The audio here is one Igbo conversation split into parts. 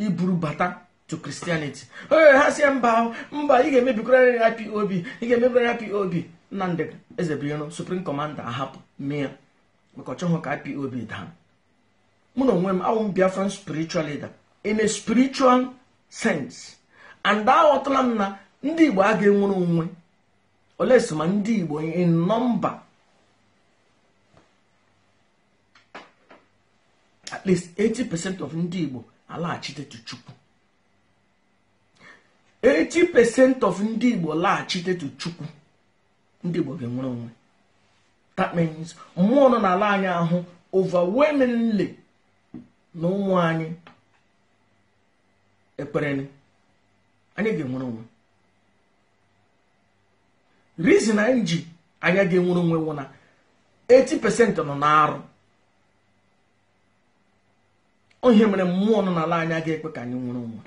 iburu bata to kristianity onye ha si mba mba ị ga-emebikwara IPOB ị ga-emebikwara anyị IPOB Nnamdị Ezebiro suprim kọmanda ahapụ mee ya maka ọ ka IPOB daa mụ na onwe m awụ m Biafran spiritual leader in a spiritual sense and aghọtala m na ndị Igbo a ga-enwere onwe olesi ma ndị Igbo in nọmba at least 80% of ndị Igbo alaghachite to Chukwu 80% of ndị Igbo laghachite to Chukwu ndị Igbo ga-enwere onwe that means mmụọ nọ n'ala anyị ahụ overwhelmingly na ụmụ anyị ekpereni anyị ga-enwere onwe reason anyị ji anya ga-enwere onwe wụ na 80% nọ n'arụ onye mere mmụọ nọ n'ala anya ga ekwe ka anyị nwere onwe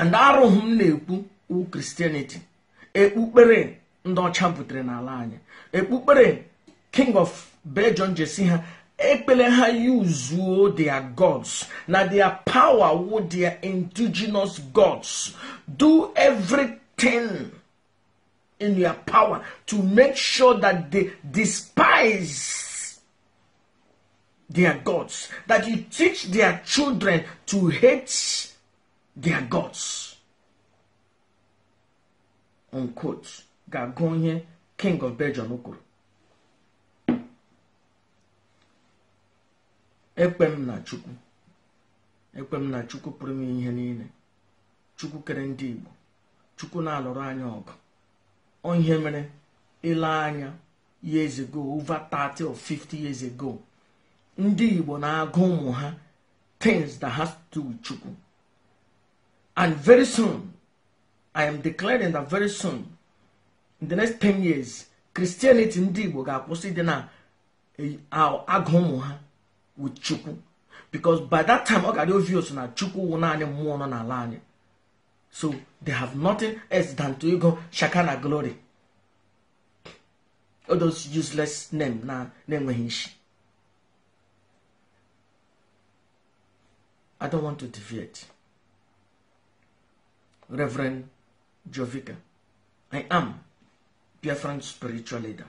and arụhụ m na-ekwu wu kristianity ekpukpere ndị ọcha butere n'ala anyị ekpukpere king of belgium jesi ha ekpere ha yuzuo their gods na their power wu their indigenous gods do everything in your power to make sure that they despise their gods, that you teach their children to hate their gods. Unquote. Ga-agụ onye King of Belgium kwuru. Ekpem na Chukwu. ekpem na Chukwu pụrụ m ihe niile. Chukwu kere ndị Igbo. Chukwu na-alụrụ anya ọgụ. Onye mere ile anya years ago, over 30 or 50 years ago. ndị igbo na-agụ ụmụ ha things that has to do with chukwu and very soon i am declaring that very soon in the next 10 years christianity ndị igbo ga-akwụsị dị na eh, agụ ụmụ ha with chukwu because by that time ọ gara obvious na chukwu wụ naanị mmụọ nọ n'ala anyị so they have nothing else than to ịgụ na glory all those useless name na na-enweghị isi I don't want to deviate. Reverend Jovica, I am Biafran spiritual leader.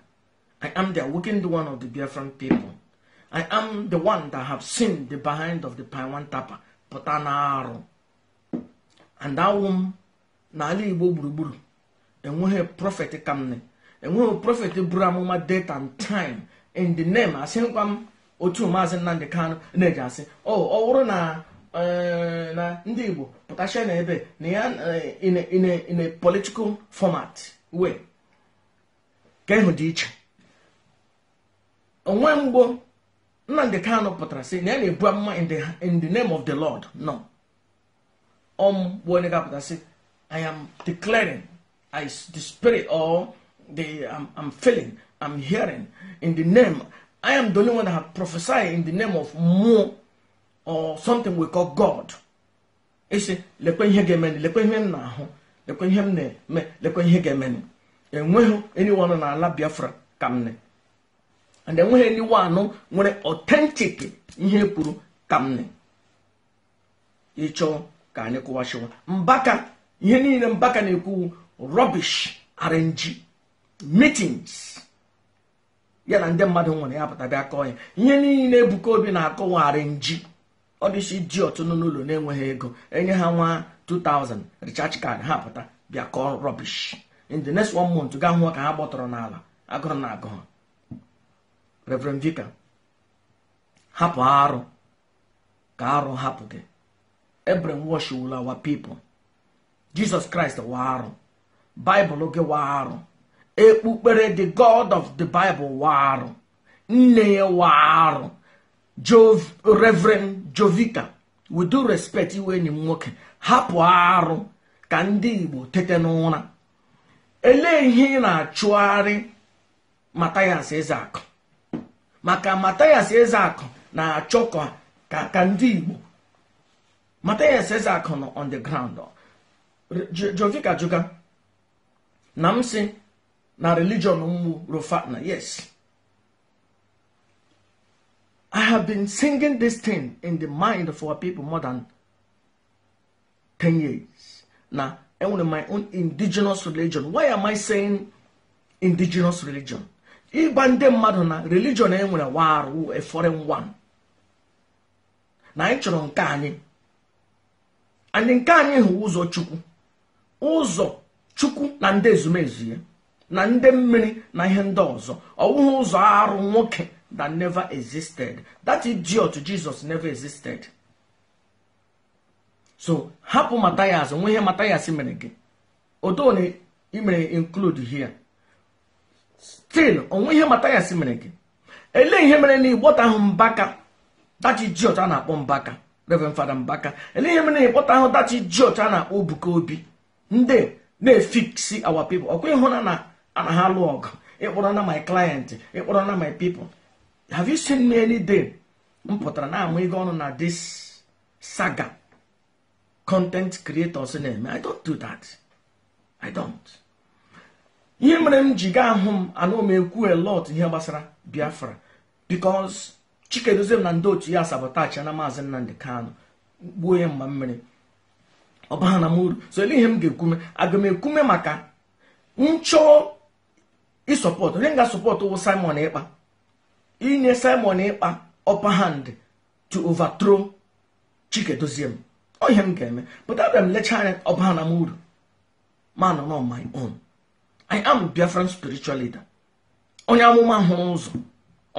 I am the awakened one of the Biafran people. I am the one that have seen the behind of the Paiwan Tapa, Potanaro. And that nali n'ala Igbo gburugburu, enweghị prophet and ne, enweghị prophet buru amụma date and time in the name asịkwa m otu and Kanụ na-eji asị oh, ọ ọ bụrụ na eji asi o o Eh, na ndị igbo pụtachia na ebe na ya eh, in a political format wee ka ịhụ dị iche onwe mgbo nnamdị kanụ pụtara sị na ya na-ebu amụma in the name of the lord no om bụ onye ga-apụta sị i am declaring I, the spirit or the I'm, I'm feeling i'm hearing in the name i am the only one that have prophesied in the name of more or something we call god ịsị lekwe ihe ga-emenụ lekwe ihe m na-ahụ lekwe ihe m na-eme lekwe ihe ga-emenụ enweghị anyone n'ala biafra ka m ne and enweghị anyone nwere ọtentik ihe kwuru ka m ịchọ ka anyị kụwachiwa mbaka ihe niile mbaka na-ekwu rubbish arrange meetings ya na ndị mmadụ nwere ya pụta bịa kọọ ya ihe niile ebuka obi na-akọwa arrange ọ dịchi ji ọtụnụ n'ụlọ na-enweghị ego enye ha nwa 2000 richard card ha pụta bịa kọọ rọbish in the next one month gaa hụọ ka ha gbọtọrọ n'ala agụrụ na agụ ha reverend vicar hapụ arụ ka arụ hapụ gị ebren washwool awa people jesus christ wa arụ baịbụl gị wa arụ ekpukpere the god of the bible wa arụ nne ya wa Jov Reverend Jovita with respect iwe enyi m nwoke hapụ arụ ka ndị Igbo tete n'ụra elee ihe ị na-achụgharị Mathias Ezeaku maka Mathias Ezeaku na-achọ ka ka ndị Igbo Mathias Ezeaku nọ on the ground Jovika Juga na m sị na religion mmụ Rofana yes I have been singing this thing in the mind of our people more than 10 years. Now, and with my own indigenous religion. Why am I saying indigenous religion? Ịgba ndị mmadụ na religion e nwere warụ a foreign one. Na anyị chọrọ nke anyị. Anyị nke anyị hụ ụzọ Chukwu. Ụzọ Chukwu na ndị ezumezu ya. Na ndị mmiri na ihe ndị ọzọ. Ọ bụghị ụzọ arụ nwoke that never existed. That idiot Jesus never existed. So hapụ Matthias onwe ihe Matthias mere gị odo na imere include here still onwe ihe Matthias mere gị ele ihe mere na ịgbọta ahụ mbaka dati idiot a na-akpọ mbaka 11 Fada Mbaka ele ihe mere na ịgbọta ahụ dati idiot a na-akpọ Obuka Obi ndị na-efiksi our pipo ọkwa ịhụna na ana ha alụ ọgụ ịkpọrọ na my client ịkpọrọ na my people have you seen me any day m pụtara na ama ego ọnụ na this saga content creators na-eme i don't do that i don't ihe mere m ji gaa ahụ m anụ m ekwu a lot ihe gbasara biafra Chike chikedozie m na ndị otu ya sabotage na maazị nnamdị kano gbuo ya mgba mmiri ọbaha na m so ele ihe m ga-ekwume aga m ekwume maka nchọ ịsọpọtụ onye m ga-asọpọtụ wụ simon ịkpa inye simon ịkpa upper hand to overthrow doziem ọ ihe m ga-eme but abịa m lecha anya upper hand am uru man on my own i am biafran spiritual leader onye amụma hụrụ ụzọ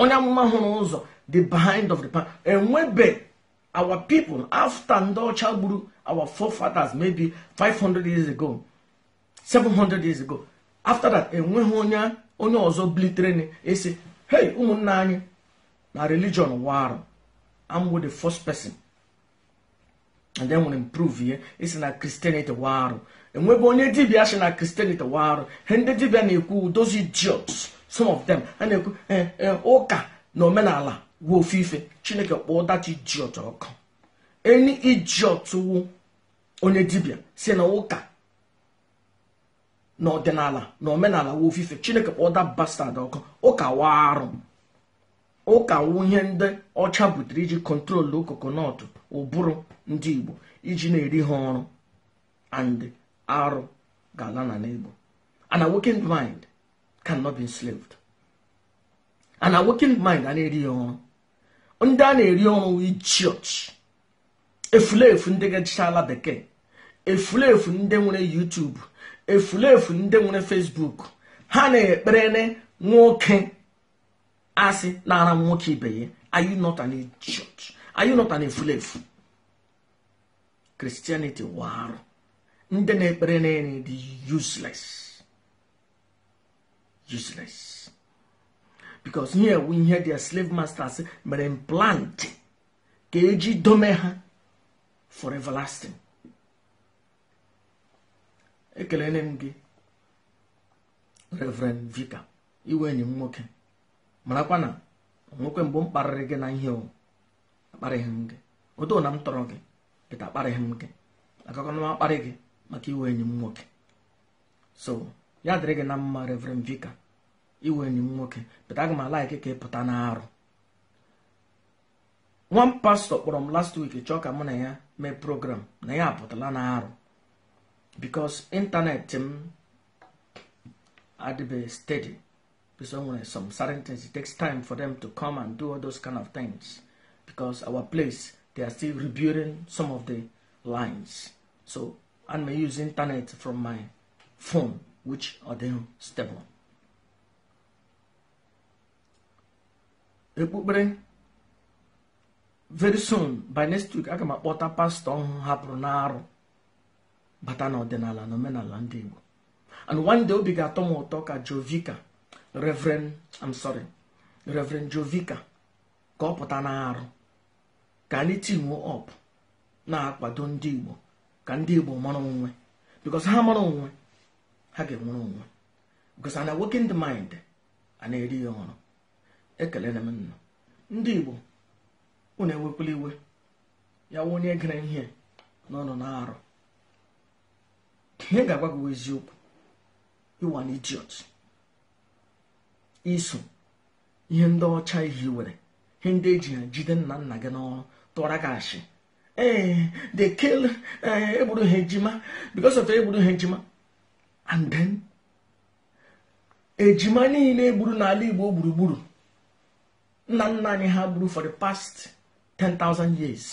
onye amụma hụrụ ụzọ the behind of the pan enwebe our people after ndị ọcha gburu our forefathers maybe 500 years ago 700 years ago after that enweghị onye onye ọzọ bilitere esi hey ụmụnna anyị na religion warụ amwo the first person and then nwere improve ihe isi na kristianity warụ enwebe onye dibia si na kristianity warụ he ndị dibia na-ekwu those idiots some of them a na-ekwu eh, eh, ụka na omenala wuo ofufe chineke kpọọ that idiot ọkụ any idiot wu onye dibia si na ụka n'ọdịnala na omenala wa ofufe chineke kpọda bastad ọkụ ụka wa arụ ụka wunye ndị ọcha butere iji kọntrolu kokonọtụ ụbụrụ ndị igbo iji na-eri ha ọrụ and arụ ga-ala na n'igbo ana awakened mind cannot be enslaved ana awakened mind a na-eri ya ọrụ ndị a na-eri ọrụ ichioch efulefu ndị gachala bekee efulefu ndị nwere YouTube efulefu ndị nwere fesbuk ha na-ekpere nwoke asị nara nwoke ibe ya are you not an idiot are you not an efulefu kristianity warụ ndị na-ekpere na-eri dị useless useless because here we hear their slave masters mere implant ka eji dome ha for everlasting ekelele m gị reverend vika iwe enyi m nwoke marakwa na nwoke mbụ m kparịrị gị na ihe akparịghị m gị odo na m tọrọ gị pịta akparịghị m gị akụkọna m akparị gị maka iwe enyi m nwoke so ya dịrị gị na mma reverend vika iwe enyi m nwoke pịta aga m alaiki ka ị pụta arụ nwa m pastọ kpọrọ m last week chọọ ka mụ na ya mee program na ya apụtala na-arụ. because internet ịntanetị m um, be steady because some certain things it takes time for them to come and do all those kind of things because our place they are still rebuilding some of the lines so I may use internet from my phone which are then stable very soon by next week I can my water ọhụụ on n'arụ bata n'ọdịnala na omenala ndị Igbo and one day obi ga-atọ m ụtọ ka Jovika Reverend I'm sorry Reverend Jovika ka ọ pụta na-arụ ka anyị tinuo ọp na-akwado ndị Igbo ka ndị Igbo mara onwe because ha mara onwe ha ga-enwere onwe because ana working the mind a na-eri ya ọrụ ekele na m nna ndị Igbo unu ewekwala iwe ya nwa onye gere ihe na ọnọ na-arụ ihe ga-agwa gị eziokwu ịwa idiot iso ihe ndị ọcha ihe were ihe ndị eji jide nna nna gị n'ọrụ tụwara gị ashị ee they kill eh, egburu ha ejima because of egburu ha ejima and then ejima niile egburu n'ala Igbo gburugburu nna nna anyị ha gburu for the past 10,000 years